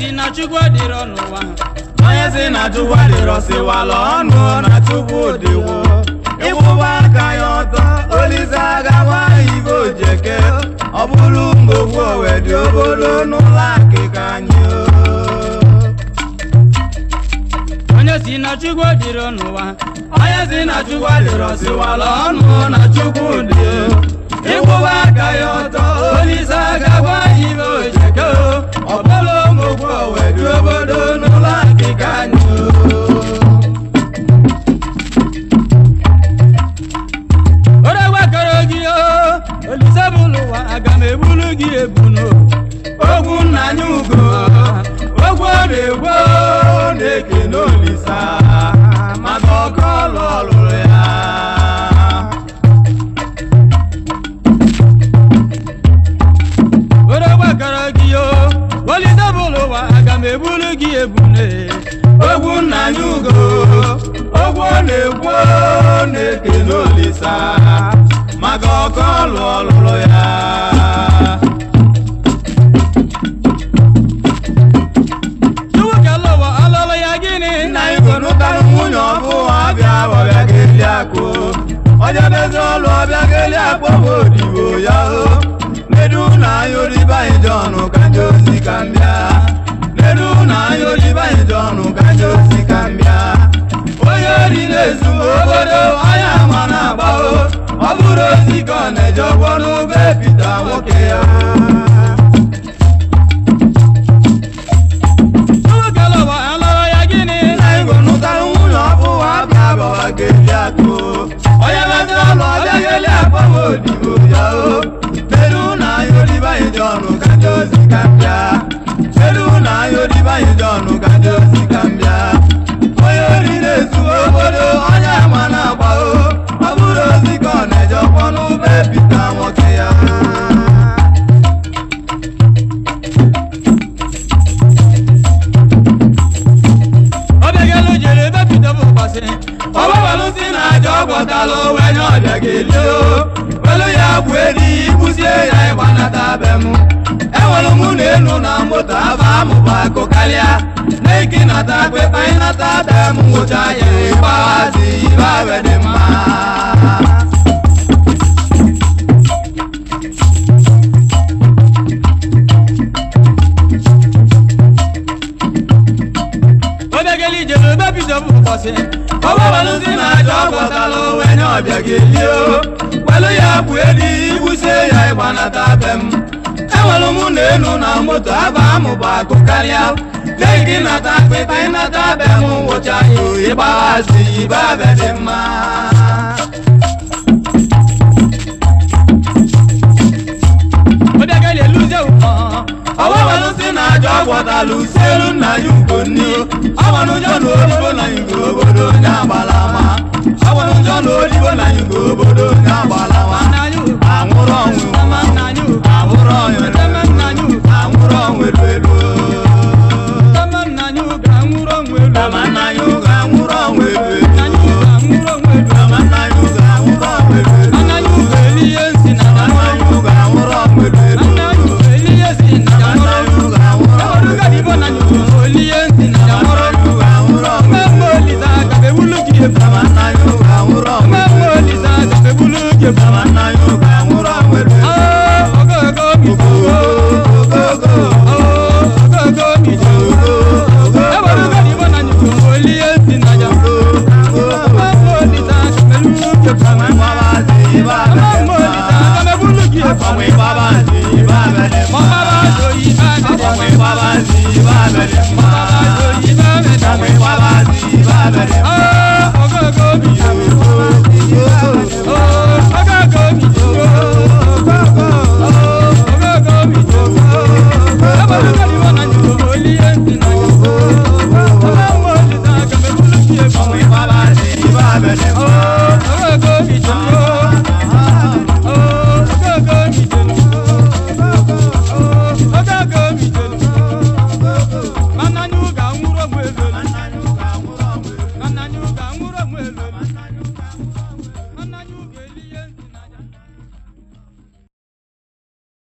onye si na chukwu dịrọ siwala ọnụ na chukwu dịwo ịkwụba aka ya ọtọ olise agawa ibe ojeke ọ bụrụ mgbogbu owedị obodo n'ụlọ akịka anyị onye si na chukwu dịrọ n'ụwa onye si na chukwu dịrọ ọnụ na chukwu dị ịkwụba aka ya ọtọ olise agawa ibe ojeke gị ogwu nna anyị ugo ogwu na-egbo na n'olisa ọkọ ụwa aga m ebulu gị ogwu anyị ugo ogwu na-egbo na-eke n'olisa maka ọkọ ọlụ ọlụrụ ya ọbịa ọbịa ga-eli akpụ onye n'ezi ọlụ ọbịa ga-eli akpụ bụ odibo ya o nedu na anya oribe anyị dị ọnụ ka ndị ozi ka mbịa nedu na anya oribe anyị dị ọnụ ka ndị ozi ka mbịa onye ori na obodo anya ma na-agba o ọ bụrụ ozi ka ọ na-eje ọgwọ Peru na yori ba idonu kanjo zikambia Peru na yori ba idonu kanjo zikambia Oyori lesu obo nụ na moto aba amụbako karịa nata akpịta ịnata ada m ngwụcha ya ịgbahazi dema. abe dị mma obegeli jere obe bido m ụbọchị ọgbabalụzi na aja ọgbọtala onwe nye ọbịa ga-eli o kwelu ya bụ edi ibuso ya ịgbanata be m na elu na moto aba amụba akụ karịa lee gị nata akpịta ịnata abịa m nwụcha ya ịgbaghazi ibe abịa dị mma ọwabalụsị na aja ọgwọtala usielu nna ya ugonni ọgbanụjọ na olibo na igwe obodo onye agbalama ọgbanụjọ na olibo na igwe obodo onye agbalama pé bàbá sí ibà bẹ̀rẹ̀ mọ́. bàbá sọ ibà bẹ̀rẹ̀ mọ́. pé bàbá sí